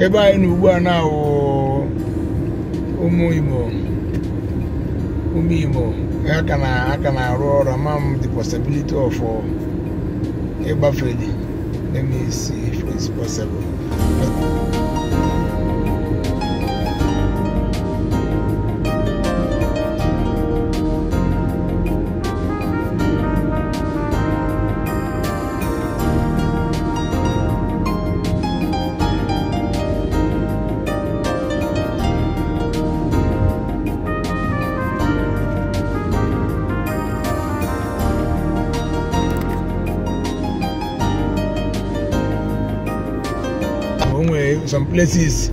ebe anyị na ugbu a na ụmụ ime ụmụ aka na aka na-arụ ọrụ ama m the possibility of ịgbafe them is ife possible some places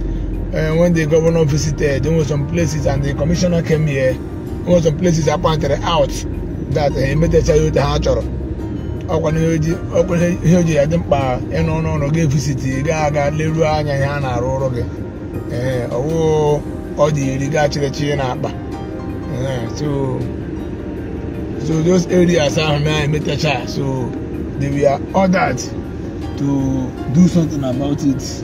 uh, when the governor visited, there were some places and the commissioner came here, there were some places I pointed out that uh, emetecha ya ote ha chọrọ ọkwa ihe o ya dị mkpa ịnọ n'ọnụ gị visiti gaa aga leruo anya ihe a na-arụ ọrụ gị ee eh, ọwụ ọ dị iri gaa chịrịchị na akpa eh, so those areas ahụ na emetecha so they were ordered to do something about it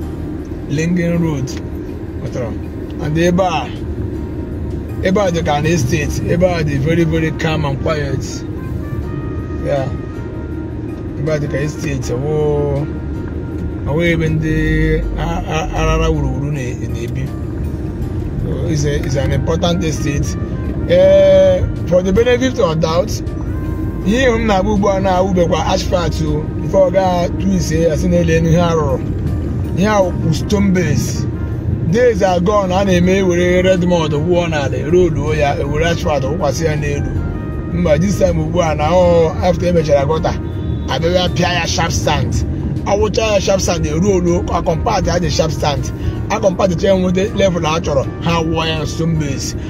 Lingen Road and ebe a ebe a dị ka na estate ebe a dị very very calm and quiet ya ebe a dị ka estate awụ ebe ndị arara wuruwuru na-ebi is an important estate ee eh, for the benefit of doubt ihe m na-agba ugbu a na-awụbekwa asphalt before ọ gaa twise ya si n'elu ihe arụrụ ya wụ stone base days are a na-eme ewere redmond wụọ n'ala eroluo ya ewere asfalt wụkwasị ya n'elu mba this time ugbu a na after emechara gọta abịa pịa ya sharp sand awụcha ya sharp sand eruolu akọmpat ha dị sharp sand akọmpat chee nweta level ha chọrọ ha wụọ ya stone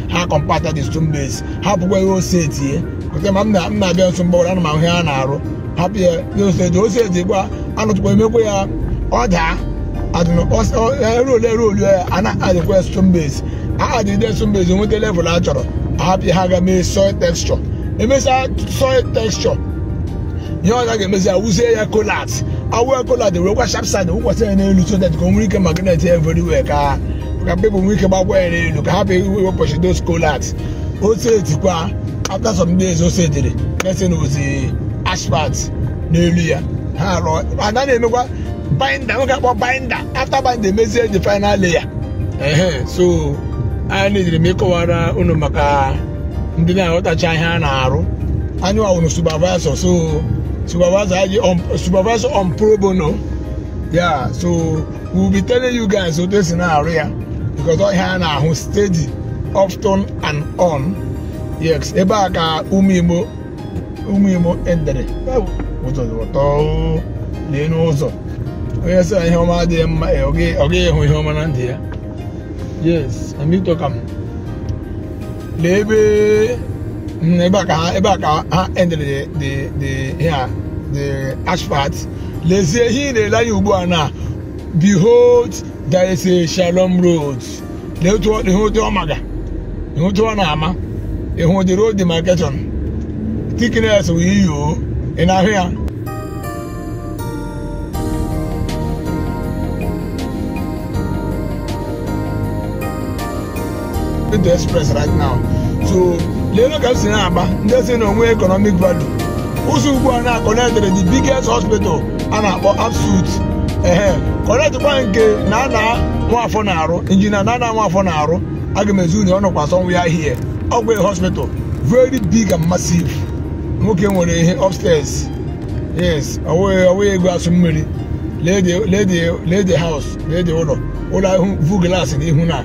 ha kọmpat ha dị stone base ha pụkwa ihe ose tie kọta ma m na-abịa nso mgbọrọ ana m ahụ ihe a na-arụ hapụ ya ose eji ose eji gba anụtụkwa emekwa ya ọ daa erolu erolu ya a na-adịkwa stone base a adịde stone base nweta level a chọrọ ahapụ ha ga mee soil texture emesịa soil texture ihe ọ ga-emezi ya wuzie ya kolat awụ kolat were kwa sharp wụkwasị ya n'elu so that ka o nwere ike magnet ya everywhere ka ka people nwee ike gbagwa ya n'elu ka hapụ wepụchi those kolat osetikwa after some days osetiri mesin ozi asphalt n'elu ya ha rụọ ana na-emekwa Binder nwoke akpọ Binder after binda emezie ji final layer ehe so anyị ejiri m ịkọwara unu maka ndị na-aghọtacha ihe a na-arụ anyị wawụrụ supervisor so supervisor anyị supervisor on pro bono ya so we will be telling you guys otu esi na-arụ ya because ihe a na-ahụ steady often and on yes ebe a ka ụmụ Igbo ụmụ Igbo endere ụtọ n'elu ụzọ. onye sị na ihe ọma adịghị mma ọ eh, gaghị ịhụ ihe ọma na ndụ ya yes amịtọkam lee ebe mm, ebe a ka ha ebe a ka ha endere the the here the asphalt lezie ihe ị na-ele anya ugbu a na behold there is a shalom road lee otu ọ maga ihe otu ọ na-ama ịhụ the road demarcation tikines wụ iyo ị na-ahụ ya Plateau Express right now so leelu ka m si na-agba ndị si na onwe economic value ụzọ ugbu a na-akọnetịrị the biggest hospital a na-akpọ Absolute ehe kọnetịkwa nke na ana nwafọ na-arụ injinia na ana nwafọ na-arụ aga m ezu na ọ nọkwa sọnwa ya hie ọgwụ hospital very big and massive nwoke nwere ihe upstairs yes ọwụghị ego asụ mmiri lee the house lee the ụlọ ụlọ ahụ vu glass n'ihu na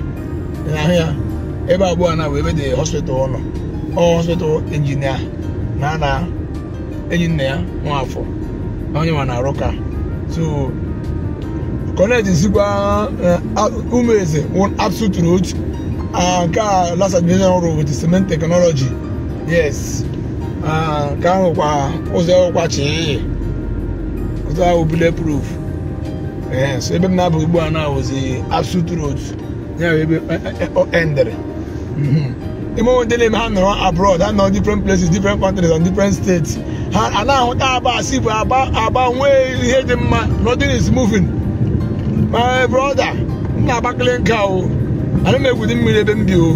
ahụ ya ebe abụọ na ebe dị hospital ọ nọ ọ hospital injinia na na enyi nna ya nwafọ na onye ma na-arụ ka so kọneji sikwa eh, ụmụeze absolute road ah, nke a last admission ọrụ with cement technology yes ah, nke ahụ kwa ụzọ kwa chi ụzọ ahụ bile proof so ebe m na-abụ ugbu a na-awụzi absolute road ya bụ ebe eh, eh, endere Mm-hmm. even dele mi ha nọrọ abroad hand on different places different countries and different states and now ahụta aba asị bụ aba aba nwee ihe dị mma nothing is moving my brother m na-agbakele nke I ana make egwudi mmiri ebe m bi o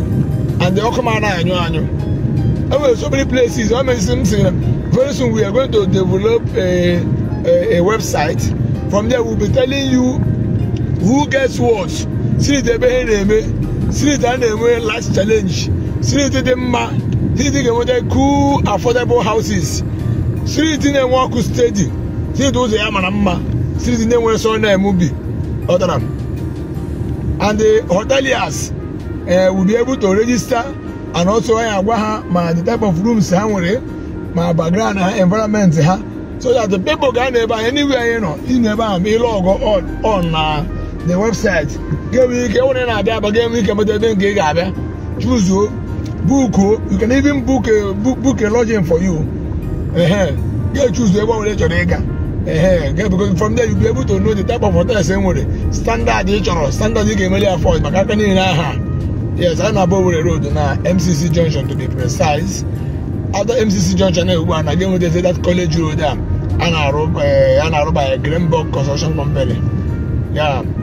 and the Okuma anaghị anyo anyo. e nwere so many places ọ mesịrị m very soon we are going to develop a, a, a website from there we will be telling you who gets what see the ha na street a na-enwe light challenge street dị mma street ga-enweta cool affordable houses street na-enwe ọkụ steady street ụzọ ya mara mma street na-enwe sọ na-eme ubi ọdara and the hoteliers eh, will be able to register and also anyị agwa ha ma the type of rooms ha nwere ma background ha environment ha so that the people ga na-ebe anyị anywhere anyị nọ ị na-ebe ahụ ma ịlụ ọgọ on na the website ga ike nwere na-abịa aba ga-enwe ike meta ebe nke ị ga-abịa chuzuo bukuo you can even book a uh, book a lodging for you ehe ga-echuzu ebe ọ nwere chọrọ ịga ehe ga-ebego from there you be able to know the type of hotels e nwere standard ị eh, chọrọ standard ị ga-emeli ya maka aka niile aha yes a na-abụ Owerri road na MCC junction to be precise after MCC junction na ugbu a na ga-enweta that college road a a na-arụ a na-arụ by Greenberg Construction Company ya